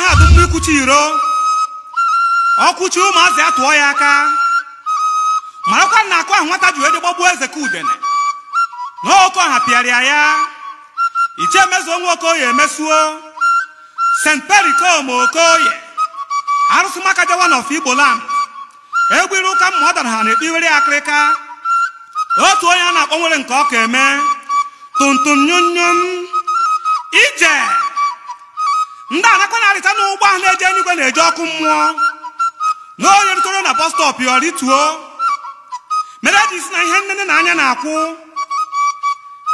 anaghị adụ mma ikwuchi iro ọkwụchi ụmụazị ya tụọ ya aka marakwa na akụ ahụ nwata ji wede gbagbuo eze ka udene na oke ọha pịarịa ya iche emezuo nwa okoye emesuo st perikom okoye arụsị maka jawa na ọfọ igbo lam egwu iru ụka mma ọ dara ha na-ekpe akịrịka otu onye a na-akpọ nwere nke ọka eme tuntum nyụnyụ ije ndị anakwa na-arịta n'ụgbọ ahụ na-eje eluigwe na-eje ọkụ mmụọ na onye rutoro na bọs stọp ya rituo mere e ji si na ihe nnene na anya na-akwụ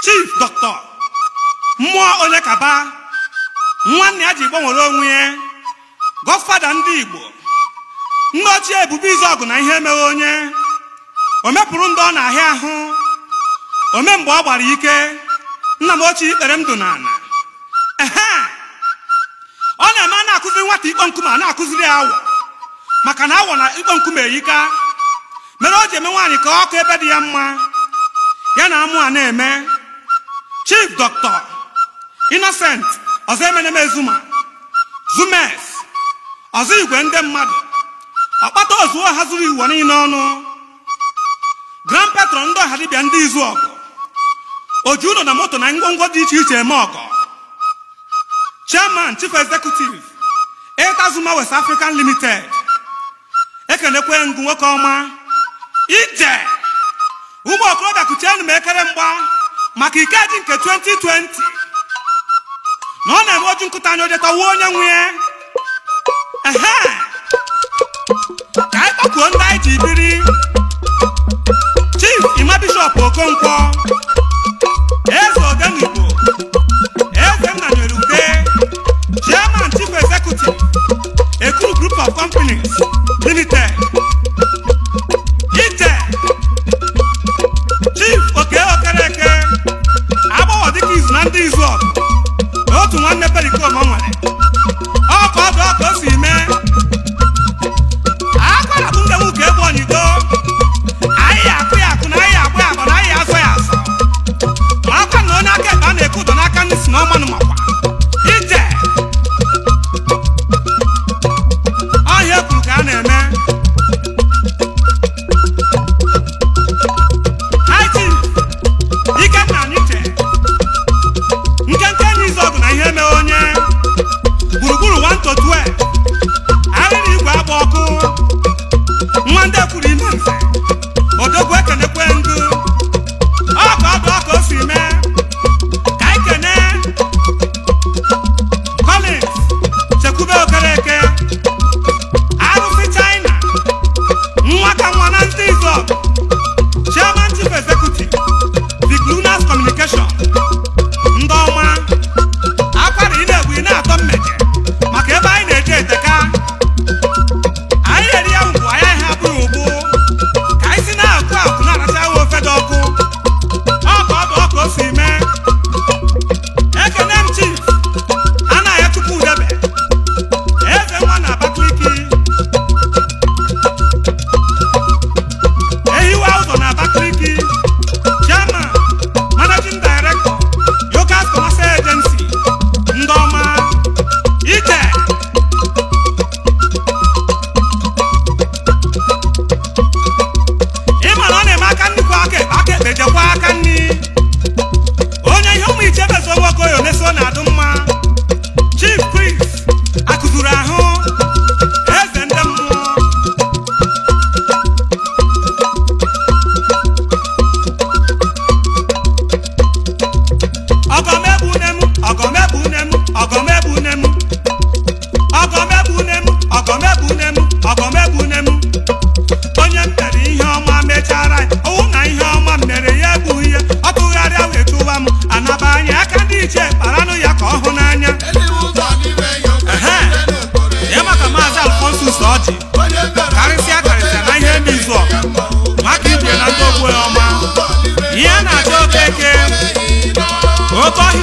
chif dọkịta mmụọ onye kaba nwanne ya ji gbanwere onwe ya gọfada ndị igbo nne ochie ebube izọgụ na ihe emeghe onye o mepụrụ ndị ọ na-ahịa ahụ ome mgbe ọ gbara ike nna m ochie ikpere m dụ n'ala nwata ikpo nkume a na-akụziri awọ maka na awọ na ikpo nkume eyika mere o ji eme nwaanyị ka ọkụ ebe dị ya mma ya na amụ a na-eme chief Dọktọ Innocent ọzọ emeneme Zuma. zumes ọzọ igwe ndị mmadụ ọkpata ozuo ha zuru iwu niile ọnụ grand petro ndị ọha dibịa ndị izu ọgụ oji ụlọ na moto na ngwongwo dị iche iche eme ọgọ chairman chief executive zuma West African Limited ekelekwe ngụ nwoke ọma ije ụmụ okorobịa kuchienu m ekere mgba maka ike dị nke 2020 na ọ na-eme oju nkụta anya ojetawa onye nwe ya ehe ka anyị kpọkuo ndị anyị ji biri Chief Ima Bishop Okonkwo Trinité.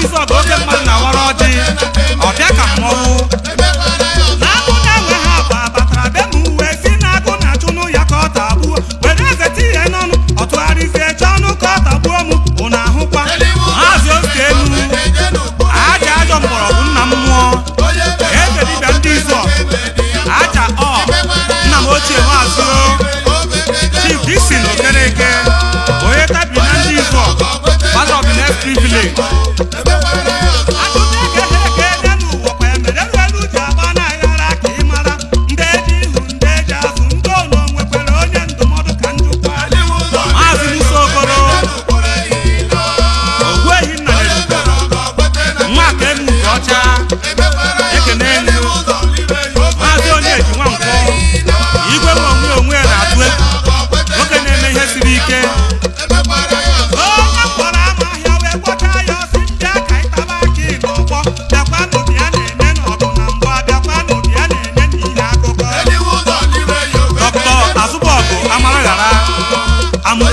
Please, go get my now.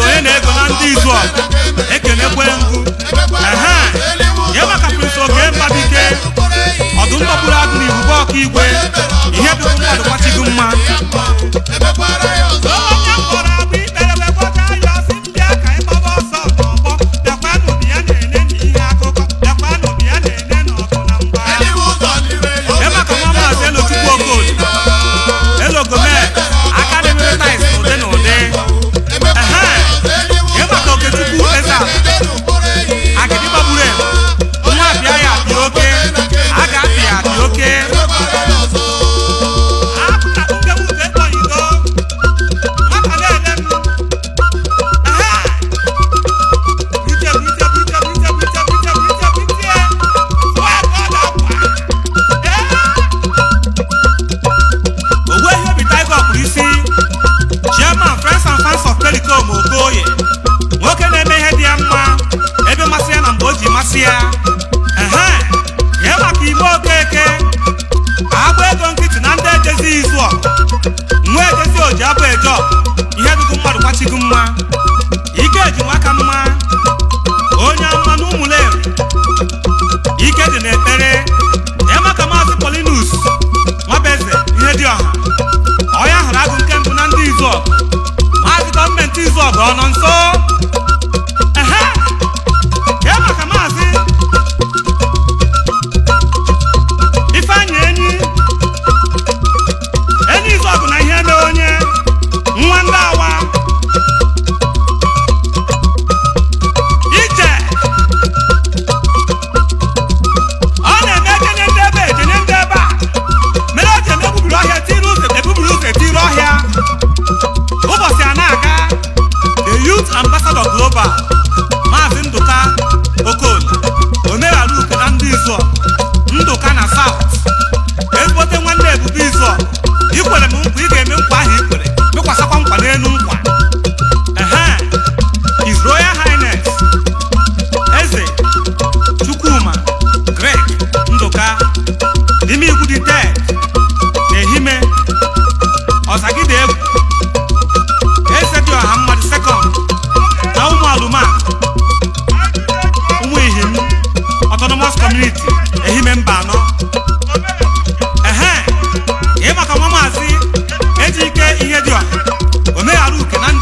onye na-ego na ndị izu ọgụ ekenekwe ngụ ehe ya maka prince oge mmabike ọdụm kpọpụrụ agụ na ibubo ọka igwe ihe dịrụ mmadụ kwachigo mma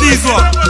these up.